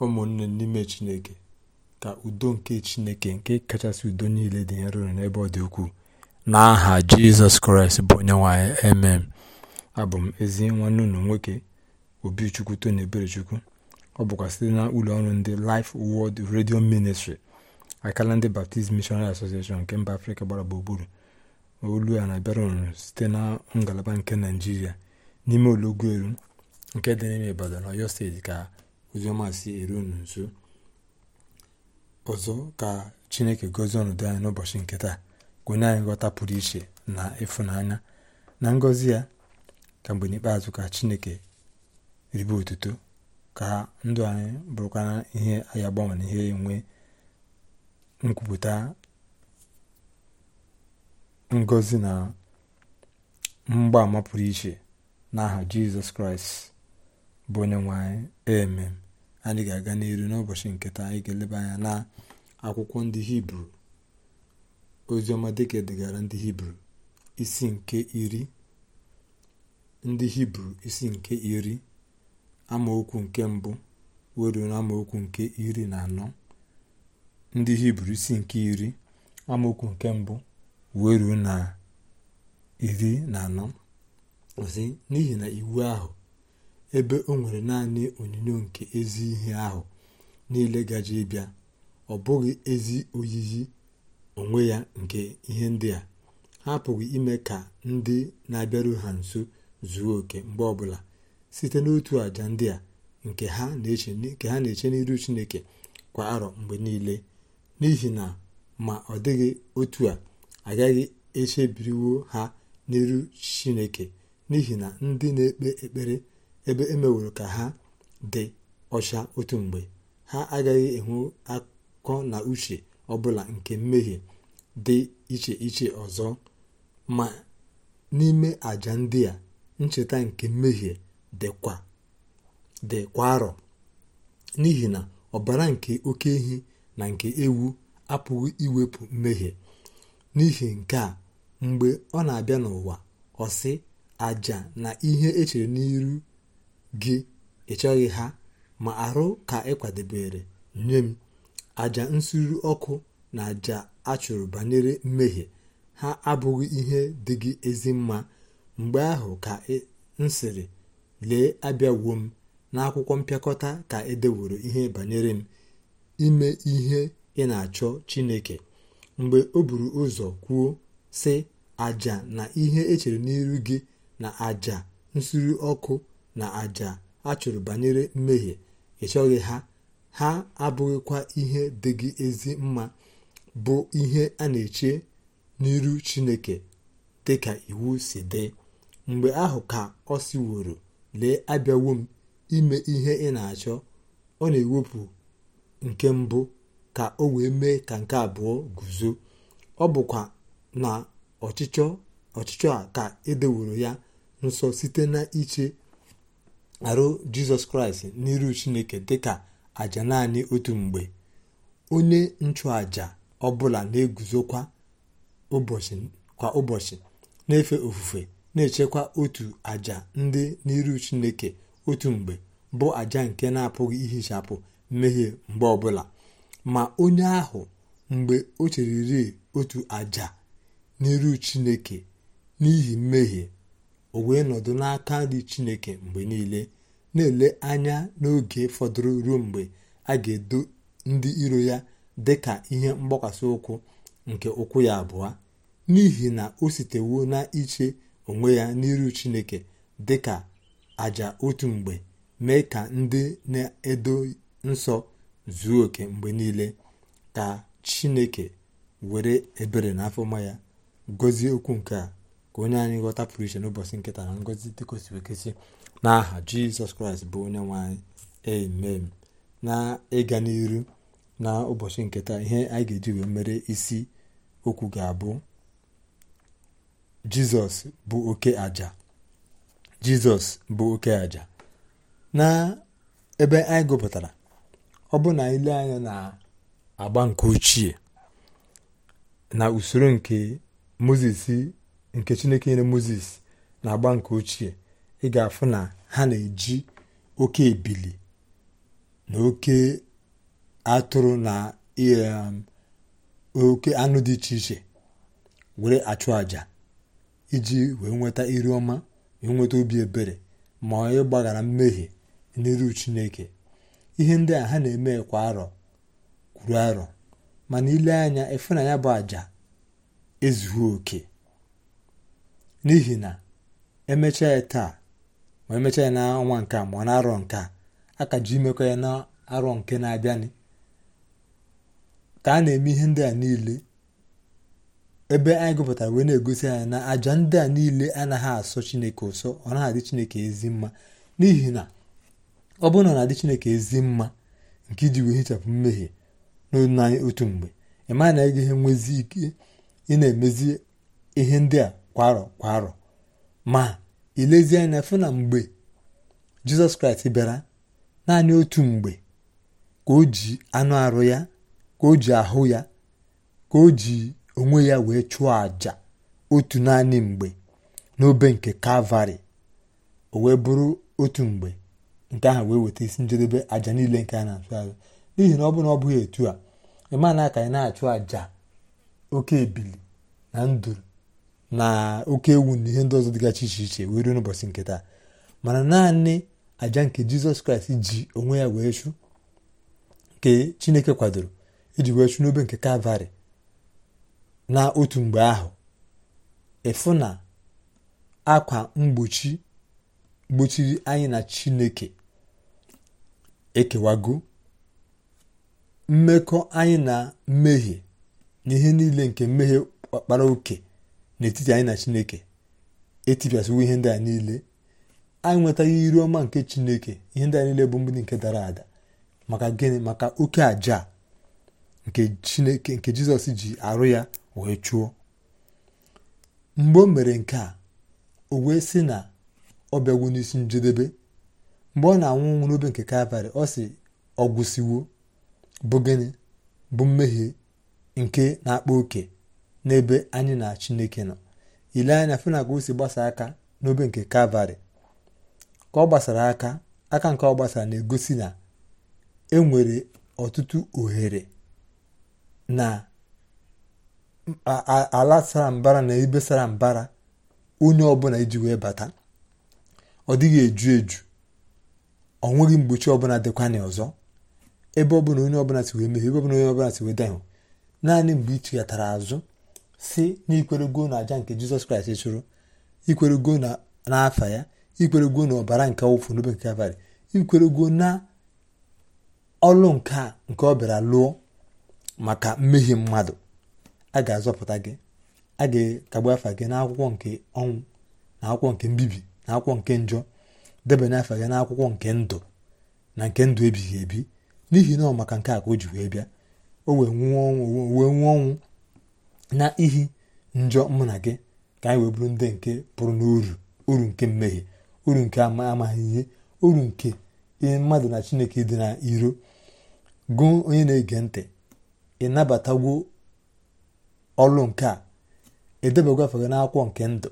ụmụnne n'ime chineke ka udo nke chineke nke kachasị udo niile dị nro n'ebe ọ dị ukwuu n'aha jizọs kraịst bụ onye nwanyị emem abụ m ezi nwanne unu nwoke obi chukwu tony eberechukwu ọ bụkwa site na ụlọ ọrụ ndị Life Word redio ministri akala ndị Baptist Missionary Association nke mba Afrịka gbara gburugburu olu a na-abịara unu site na ngalaba nke Naijiria n'ime olọgwu elu nke dị n'ime Ibadan Ọyọ steeti ka Oziọma si eru unu ọzọ ka Chineke gozie ọnọdụ anyị n'ụbọchị nke taa ka onye anyị nghọta pụrụ iche na ịfụnanya na ngọzi ya ka mgbe n'ikpeazụ ka Chineke ribe otuto ka ndụ anyị bụrụkwara ihe anyị agbanwe na ihe enwe nkwupụta ngọzi na mgbaama pụrụ iche n'aha Jizọs Kraịst bụ onye nwe anyị amen anyị ga-aga n'iru n'ụbọchị nke taa anyị ga-eleba anya na akwụkwọ ndị hibru oziọma dịka e gara ndị hibru isi nke iri ndị hibru isi nke iri amaokwu nke mbụ weruo na nke iri na anọ ndị hibru isi nke iri amaokwu nke mbụ weruo na iri na anọ n'ihi na iwu ahụ ebe o nwere naanị onyinyo nke ezi ihe ahụ niile gajị bịa ọ bụghị ezi oyiyi onwe ya nke ihe ndị a ha pụghị ime ka ndị na-abịaru ha nso zuo oke mgbe ọbụla site n'otu àjà ndị a nke ha na-eche n'iru chineke kwa arọ mgbe niile n'ihi na ma ọ dịghị otu a agaghị echebiriwo ha n'iru chineke n'ihi na ndị na-ekpe ekpere ebe emeworo ka ha dị ọcha otu mgbe ha agaghị enwe akọ na uche ọbụla nke mmehie dị iche iche ọzọ ma n'ime àjà ndị a ncheta nke mmehie dịkwa kwa arọ n'ihi na ọbara nke oke ehi na nke ewu apụghị iwepụ mmehie n'ihi nke a mgbe ọ na-abịa n'ụwa ọ sị aja na ihe echere n'iru gị ịchọghị ha ma arụ ka ị kwadebere nye m aja nsuru ọkụ na àjà achụrụ banyere mmehie ha abụghị ihe dị gị ezi mma mgbe ahụ ka m sịrị lee abịawuo m n'akwụkwọ mpịakọta ka edeworo ihe banyere m ime ihe ị na-achọ chineke mgbe o buru ụzọ kwuo sị àjà na ihe echere n'iru gị na àjà nsuru ọkụ na àjà a chụrụ banyere mmehie ị ha ha abụghịkwa ihe dị gị ezi mma bụ ihe a na-eche n'iru chineke dị ka iwu si dị mgbe ahụ ka ọ siworo lee abịawo m ime ihe ị na-achọ ọ na-ewepụ nke mbụ ka o wee mee ka nke abụọ guzo ọ bụkwa na ọchịchọ a ka edeworo ya nsọ site na iche arụ jizọs kraịst n'iru chineke dịka aja naanị otu mgbe onye nchụaja ọbụla na-eguzokwa ụbọchị kwa ụbọchị na-efe ofufe na-echekwa otu aja ndị n'iru chineke otu mgbe bụ aja nke na-apụghị ihichapụ mmehie mgbe ọbụla ma onye ahụ mgbe o cheriri otu aja n'iru chineke n'ihi mmehie o wee nọdụ n'aka dị chineke mgbe niile na-ele anya n'oge fọdụrụ ruo mgbe a ga-edo ndị iro ya dị ka ihe mgbakwasị ụkwụ nke ụkwụ ya abụọ n'ihi na o sitewo na iche onwe ya n'iru chineke dị ka aja otu mgbe mee ka ndị na-edo nsọ zuo oke mgbe niile ka chineke were ebere na afọma ya gọzie okwu nke a onye anyị ghọta pụrụ iche n'ụbọchị nkịta na ngọzi dị n'aha jizọs kraịst bụ onye nwanyị emem amen na ịga n'iru na ụbọchị nkịta ihe anyị ga-eji mere isi okwu ga-abụ jizọs bụ oke aja jizọs bụ oke aja na ebe anyị gụpụtara ọ bụ na ile anya na agba nke ochie na usoro nke moses nke chineke nyere moses na agba nke ochie ị ga-afụ na ha na-eji oke ebili na oke atụrụ na um, oke anụ dị iche iche were achụ àjà iji wee nweta iri ọma wee nweta obi ebere ma onye gbaghara mmehie n'iru chineke ihe ndị a ha na-eme kwa arọ kwuru arọ mana ile anya ịfụnanya bụ àjà ezuhi oke n'ihi na emechaa ya taa ma emechaa ya n'ọnwa nke a ma ọ na-arọ nke a aka ji imekọ ya na-arọ nke na-abịanị ka a na-eme ihe ndị a niile ebe anyị gụpụtara wee na-egosi anyị na àjà ndị a niile anaghị asọ chineke ụsọ ọ naghị adị chineke ezi mma n'ihi na ọ bụrụ na ọ na-adị chineke ezi mma nke iji wee hichapụ mmehie n'olu anyị otu mgbe ị maghị na ị gaghị nwezi ike ị na-emezi ihe ndị a kwa arọ kwa arọ ma ilezie anya fụ na mgbe jizọs kraịst bịara naanị otu mgbe ka o ji anụ arụ ya ka o ji ahụ ya ka o ji onwe ya wee chụọ aja otu naanị mgbe n'obe nke kalvari o wee bụrụ otu mgbe nke ahụ wee weta isi njedebe aja niile nke a na-achụ azụ n'ihi na ọ bụrụ na ọ bụghị etu a ịmana aka anyị na-achụ àjà oke ebili na nduru na oke ewu na ihe ndị ọzọ dịgachi iche iche wee ruo n'ụbọchị nke taa mana naanị aja nke jizọs kraịst ji onwe ya wee chụ nke chineke kwadoro iji wee chụ n'obe nke kalvarị na otu mgbe ahụ efu na akwa mgbochi gbochiri anyị na chineke ekewago mmekọ anyị na mmehie na ihe niile nke mmehie ọkpara oke n'etiti anyị na chineke etipịasịwo ihe ndị a niile anyị nwetaghị iru ọma nke chineke ihe ndị a niile bụ mgbidi nke dara ada maka gịnị maka oke aja nke chineke nke jizọs ji arụ ya wee chụọ mgbe o mere nke a o wee sị na ọ bịagwo n'isi njedebe mgbe ọ na-anwụ nwụ n'obe nke kalvarị ọ sị ọ gwụsịwo bụ gịnị bụ mmehie nke na-akpa oke n'ebe anyị na chineke nọ ile anya fena ka o si gbasa aka n'obe nke kalvari ka ọ gbasara aka aka nke ọ gbasara na-egosi na enwere ọtụtụ ohere na ala sara mbara na ebe sara mbara onye ọbụla iji wee bata ọ dịghị eju eju ọ nweghị mgbochi ọbụla dịkwanye ọzọ ebe ọbụla onye ọbụla si wee mehie ebe ọbụla onye ọbụla si wee dahụ naanị mgbe ị chighatara azụ si na na aja nke jizọs kraịst chụrụ ikwerego n'afa ya ikwerego na ọbara nke awụfu n'obe nke abalị ikwerego na ọlụ nke nke ọ bịara lụọ maka mmehie mmadụ a ga-azọpụta gị a ga-akagbu afa gị n'akwụkwọ nke ọnwụ na akwụkwọ nke mbibi na akwụkwọ nke njọ debanye afa gị n'akwụkwọ nke ndụ na nke ndụ ebighị ebi n'ihi na ọ maka nke a ka o ji wee bịa o wee nwụọ ọnwụ na ihi njọ mụ na gị ka anyị wee bụrụ ndị nke pụrụ n'uru uru nke mmehie uru nke amaghị ihe uru nke ihe mmadụ na chineke dị na iro gụọ onye na-ege ntị ịnabatagwo ọlụ nke a edebagwo afọ gị n'akwụkwọ nke ndụ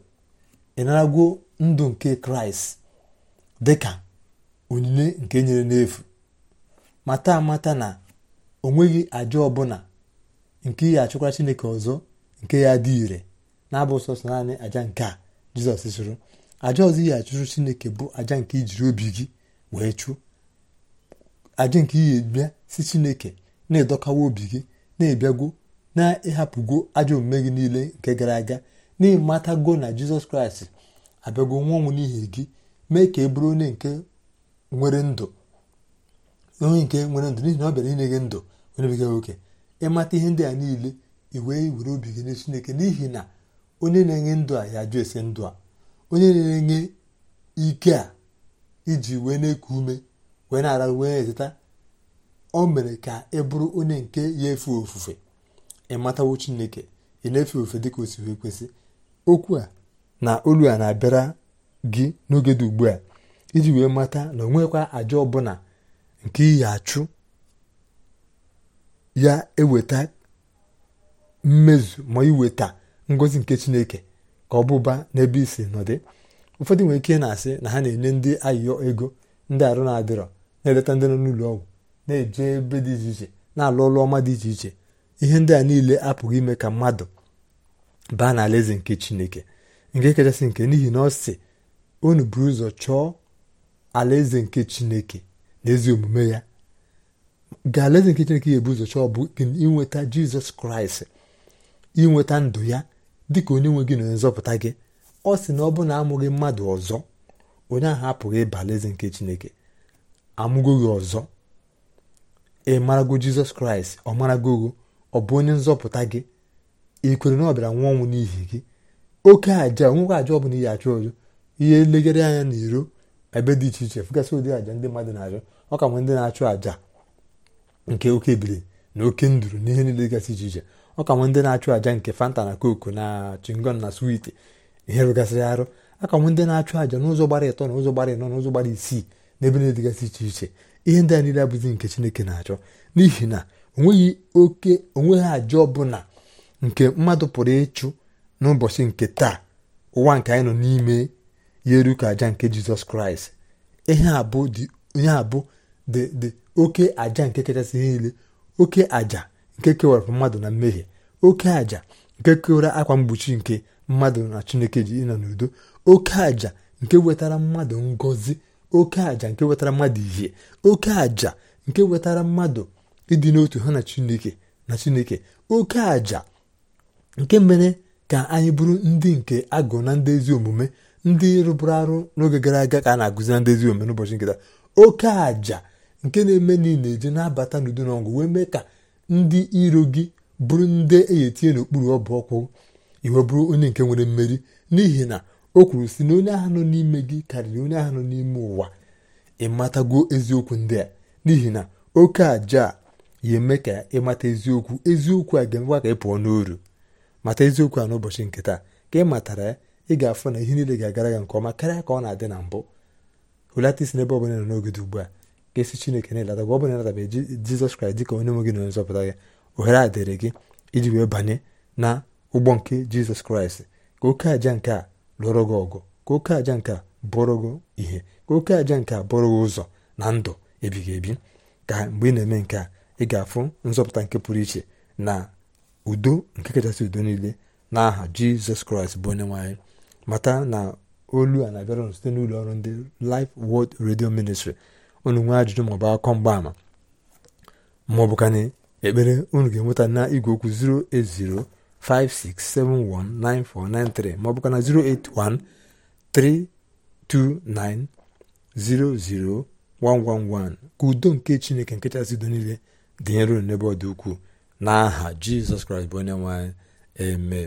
ịnaragwo ndụ nke kraịst dị ka onyinye nke nyere n'efu mata amata na onweghị aja ọbụla nke ya achụkwa chineke ọzọ nke ya dị ire na-abụ sọsọ naanị aja nke a jizọs sụrụ aja ọzọ ihe achụrụ chineke bụ aja nke ijiri obi gị wee chụọ aja nke ihe bịa si chineke na-edokawa obi gị na ebịago na-ịhapụgo ajọ omume gị niile nke gara aga na-emata n'ịmatago na jizọs kraịst abịago nwa ọnwụ n'ihi gị mee ka e bụrụ onye nke nwere ndụ onye nke nwere ndụ n'ihi na ọ bịara inye gị ndụ onye bega nwoke mata ihe ndị a niile i wee were obi gị nye chineke n'ihi na onye na-enye ndụ a ya jụ esi ndụ a onye na-enye ike a iji wee na-eku ume wee na-ara wee zụta o mere ka ị bụrụ onye nke ya efe ofufe ịmatawo chineke ị na-efe ofufe dịka osi si wee kwesị okwu a na olu a na-abịara gị n'oge dị ugbu a iji wee mata na o nwekwa àjà ọbụla nke iyi achụ ya eweta mmezu ma iweta ngozi nke chineke ka ọ bụba n'ebe isi nọdị ụfọdụ nwere ike na-asị na ha na-enye ndị ayịyọ ego ndị arụ na-adịrọ na-eleta ndị nọ n'ụlọ ọgwụ na-eje ebe dị iche iche na-alụ ọlụ ọma dị iche iche ihe ndị a niile apụghị ime ka mmadụ baa n'alaeze nke chineke nke kachasị nke n'ihi na ọ si unu buru ụzọ chọọ alaeze nke chineke na ezi omume ya ga alaeze nke chineke ya ebuzo chọọ bụ inweta jizọs kraịst inweta ndụ ya dịka onye nwe gị na onye nzọpụta gị ọ sị na ọ bụrụ na amụghị mmadụ ọzọ onye ahụ apụghị ịba alaeze nke chineke amụgo gị ọzọ ị marago jizọs kraịst ọ marago gị ọ bụ onye nzọpụta gị ị na ọ bịara nwa ọnwụ n'ihi gị oke aja nwoke aja ọ bụla ihe achụ ọjọ ihe legere anya n'iro ebe dị iche iche fụgasị ụdị aja ndị mmadụ na-achọ ọ ka nwe ndị na-achụ aja nke oke biri na oke nduru n'ihe niile gasị iche iche ọ ka nwe ndị na-achụ àja nke fanta na koko na chingon na switi ihe rụgasịrị arụ aka nwe ndị na-achụ aja n'ụzọ gbara ịtọ na ụzọ gbara ịnọ na ụzọ gbara isii n'ebe na-edịgasị iche iche ihe ndị a niile abụzi nke chineke na-achọ n'ihi na onweghị oke onweghị àja ọbụla nke mmadụ pụrụ ịchụ n'ụbọchị nke taa ụwa nke anyị nọ n'ime ya eru ka àja nke jizọs kraịst ihe abụ ihe abụ dị dị oke aja nke kachasị niile oke aja nke kewara mmadụ na mmehie oke aja nke kewara akwa mgbochi nke mmadụ na chineke ji ịnọ n'udo oke aja nke wetara mmadụ ngozi oke aja nke wetara mmadụ ihe oke aja nke wetara mmadụ ịdị n'otu ha na chineke na chineke oke aja nke mere ka anyị bụrụ ndị nke agụ na ndị ezi omume ndị rụbụrụ arụ n'oge gara aga ka a na-agụzi na ndị ezi omume n'ụbọchị nkịta oke aja nke na-eme na eje na-abata n'udo na ọgụ wee mee ka ndị iro gị bụrụ ndị eyetinye n'okpuru ọbụ ọkwụ iwe bụrụ onye nke nwere mmeri n'ihi na o kwuru si na onye ahụ nọ n'ime gị karịrị onye ahụ nọ n'ime ụwa ịmatago eziokwu ndị a n'ihi na oke aja a ya eme ka ịmata eziokwu eziokwu a ga-emekwa ka ị pụọ n'oru mata eziokwu a n'ụbọchị nke taa ka ị matara ya ị ga-afụ na ihe niile ga-agara nke ọma karịa ka ọ na-adị na mbụ hulata isi n'ebe ọ nọ n'oge ugbu a ga-esi chineke na-elata gwa ọ bụ na elatabeghị jizọs kraịst dịka onye nwe gị na onye nzọpụta gị ohere a dịrị gị iji wee banye na ụgbọ nke jizọs kraịst ka oke aja nke a lụrụ gị ọgụ ka oke aja nke a bụrụ gị ihe ka oke aja nke a bụrụ gị ụzọ na ndụ ebighị ebi ka mgbe ị na-eme nke a ị ga-afụ nzọpụta nke pụrụ iche na udo nke kachasị udo niile n'aha aha jizọs kraịst bụ onye nwaanyị mata na olu a na-abịara site n'ụlọ ọrụ ndị lif Word redio ministri unu nwee ajụjụ maọbụ akọ mgbaama maọbụkana ekpere unu ga-enweta na igwe okwu 08056719493 56719493 08132900111 ka udo nke chineke chasị udo niile dị nro n'ebe ọ dị ukwuu n'aha jizọs kraịst bụ onye nwaanyị eme.